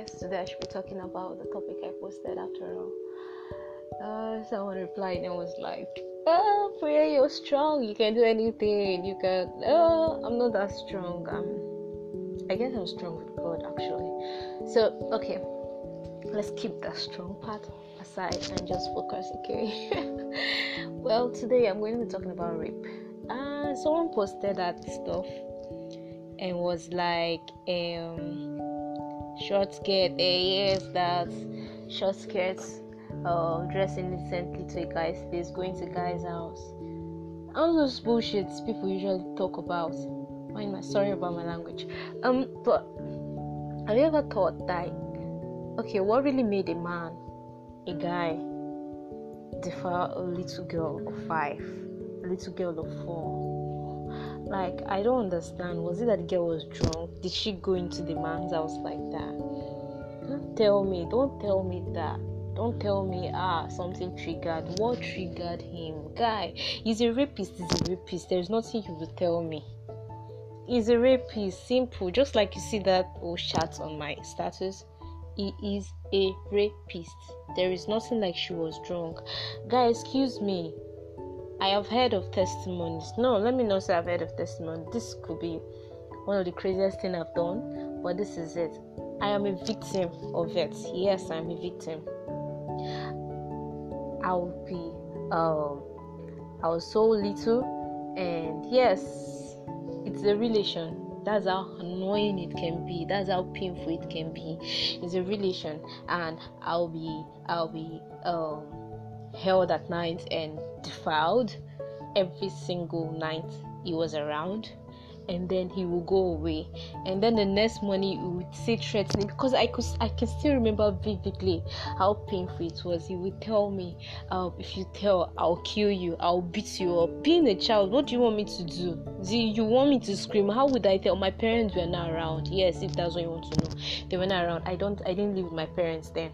yes, today I should be talking about the topic I posted after all. Uh, someone replied and was like, Oh, Priya, you're strong. You can do anything. You can. Oh, I'm not that strong. I'm, I guess I'm strong with God, actually. So, okay, let's keep that strong part aside and just focus, okay? well, today I'm going to be talking about rape. Uh, someone posted that stuff and was like, um, short skirt, a eh, yes, that short skirt uh, dressing decently to a guy's place, going to a guy's house. All those bullshits people usually talk about. Mind my sorry about my language. Um, but have you ever thought like, okay, what really made a man, a guy, defer a little girl of five, a little girl of four? Like, I don't understand. Was it that the girl was drunk? Did she go into the man's house like that? Don't tell me. Don't tell me that. Don't tell me, ah, something triggered. What triggered him? Guy, he's a rapist. He's a rapist. There's nothing you will tell me. He's a rapist. Simple. Just like you see that old chat on my status he is a rapist. There is nothing like she was drunk. Guy, excuse me. I have heard of testimonies. No, let me not say I've heard of testimony. This could be one of the craziest thing I've done, but this is it. I am a victim of it. Yes, I'm a victim. I'll be um I was so little and yes, it's a relation. That's how annoying it can be. That's how painful it can be. It's a relation and I'll be I'll be um held at night and defiled every single night he was around and then he will go away and then the next morning he would say threatening because i could i can still remember vividly how painful it was he would tell me um, if you tell i'll kill you i'll beat you up being a child what do you want me to do do you want me to scream how would i tell my parents were not around yes if that's what you want to know they were not around i don't i didn't live with my parents then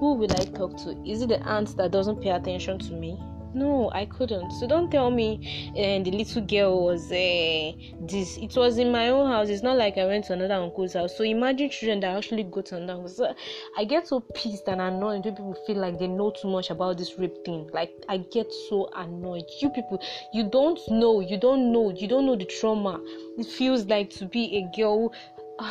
Who will I talk to? Is it the aunt that doesn't pay attention to me? No, I couldn't. So don't tell me uh, the little girl was uh, this. It was in my own house. It's not like I went to another uncle's house. So imagine children that actually go to another house. I get so pissed and annoyed when people feel like they know too much about this rape thing. Like I get so annoyed. You people, you don't know. You don't know. You don't know the trauma. It feels like to be a girl. Uh,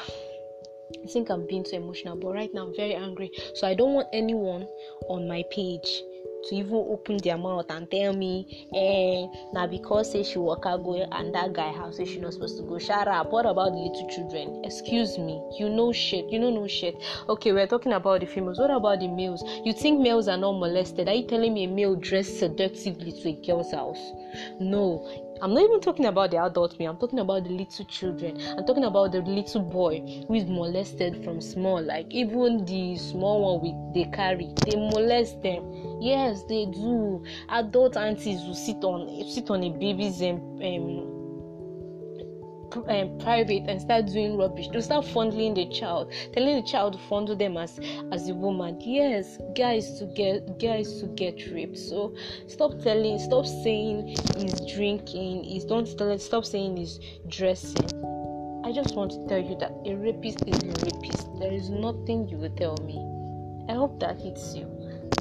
I think I'm being too emotional, but right now I'm very angry. So I don't want anyone on my page to even open their mouth and tell me, eh, now because say she walk out go and that guy house say she not supposed to go. Shut up. What about the little children? Excuse me. You know shit. You know no shit. Okay, we're talking about the females. What about the males? You think males are not molested? Are you telling me a male dressed seductively to a girl's house? No I'm not even talking about the adult me, I'm talking about the little children. I'm talking about the little boy who is molested from small. Like even the small one we they carry, they molest them. Yes, they do. Adult aunties will sit on sit on a baby's um, um um, private and start doing rubbish. to start fondling the child, telling the child to fondle them as as a woman. Yes, guys to get guys to get raped. So stop telling, stop saying he's drinking. He's don't tell, stop saying he's dressing. I just want to tell you that a rapist is a rapist. There is nothing you will tell me. I hope that hits you.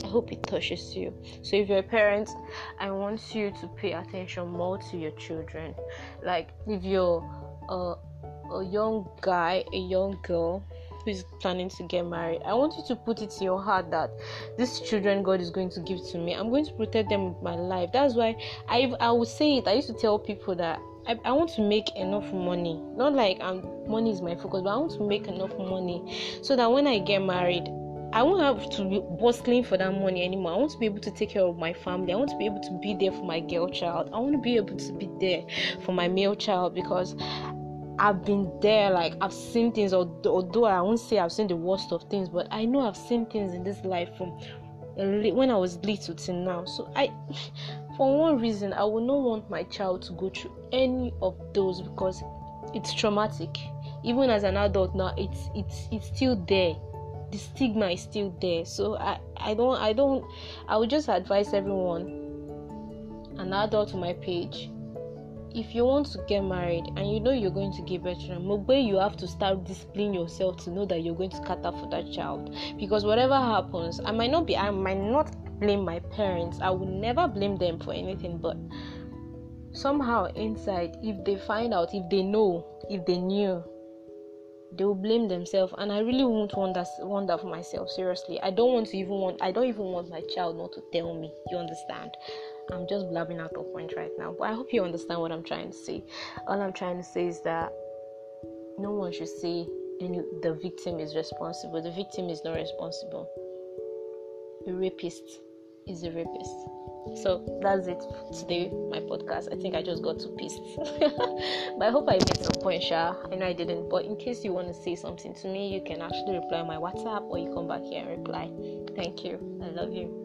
I hope it touches you. So, if you're a parent, I want you to pay attention more to your children. Like, if you're a, a young guy, a young girl who is planning to get married, I want you to put it in your heart that these children God is going to give to me, I'm going to protect them with my life. That's why I I would say it. I used to tell people that I, I want to make enough money. Not like I'm, um, money is my focus, but I want to make enough money so that when I get married, I won't have to be bustling for that money anymore. I want to be able to take care of my family. I want to be able to be there for my girl child. I want to be able to be there for my male child because I've been there, like I've seen things, although I won't say I've seen the worst of things, but I know I've seen things in this life from when I was little till now. So I, for one reason, I would not want my child to go through any of those because it's traumatic. Even as an adult now, it's it's it's still there. the stigma is still there so i i don't i don't i would just advise everyone an adult to my page if you want to get married and you know you're going to give birth to Mugbe, you have to start disciplining yourself to know that you're going to cater for that child. Because whatever happens, I might not be, I might not blame my parents. I would never blame them for anything, but somehow inside, if they find out, if they know, if they knew they will blame themselves and i really won't want that, want that for myself seriously i don't want to even want i don't even want my child not to tell me you understand i'm just blabbing out of point right now but i hope you understand what i'm trying to say all i'm trying to say is that no one should say any, the victim is responsible the victim is not responsible the rapist is a rapist. So that's it for today, my podcast. I think I just got too pissed. but I hope I made some point, Sha. I know I didn't, but in case you want to say something to me, you can actually reply on my WhatsApp or you come back here and reply. Thank you. I love you.